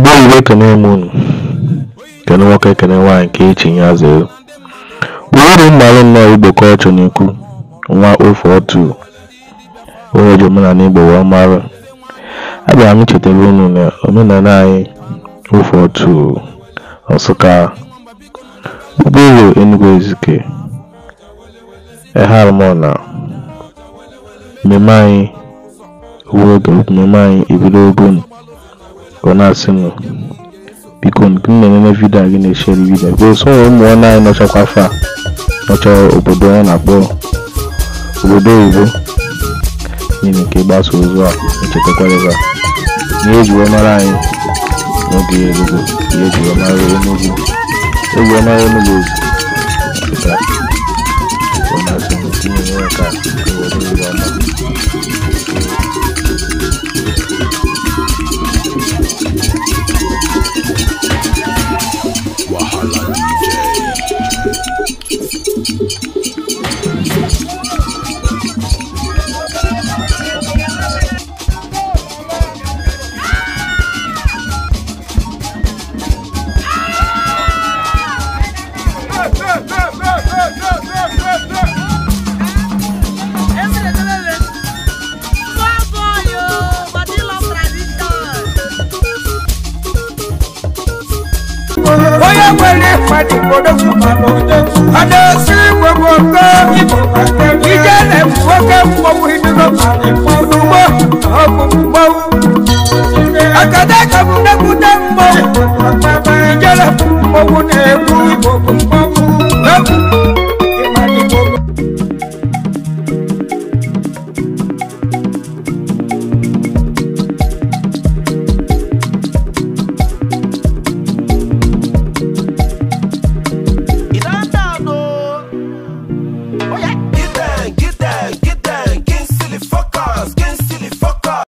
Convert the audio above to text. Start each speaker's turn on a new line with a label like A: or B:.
A: Igbo bụ ekene m unu, kene nwoke kene nwaanyị nke e chi ya zere. Gburugburu m mara nnọọ Igbo ka ọchụ na nwa ofe otu onye ji omenala Igbo wee mara. Abịara m ichetara unu na omenala anyị ofe otu Nsụka, Ụgbọelu Enugu Ezike, Eharmona, mmemme anyị mmemme anyị ebido ogun ọ na-asị m biko nke m na-ememe vidiyo gị na-echere vidiyo bụo so ụmụ nwanne
B: anyị nọchakwa afọ a nọcha obodo ya na-akpọ obodo oyibo n'ihi nke gbasa ozu a echetakwa ebe a na ejiwe mara anyị n'oge ya erugo ya ejiwe mara enugwu ejiwe mara enugwu ozu ọ na-asị m tinyere ya ka obodo oyibo ọma
C: onye nwere ịkpa dị mkpọrọgwụ ma n'ụdị ọdẹ sí gbogbo pé ìjẹ́ lè fọ́kẹ́ fọwọ́ ìdúró fọdúnwó ọ̀gbọ̀gbọ̀. akadé kàbùdẹ́kùdẹ́ ń bọ̀ ìjẹ́ lè fọwọ́ ní ẹ̀kú ìgbọ̀gbọ̀.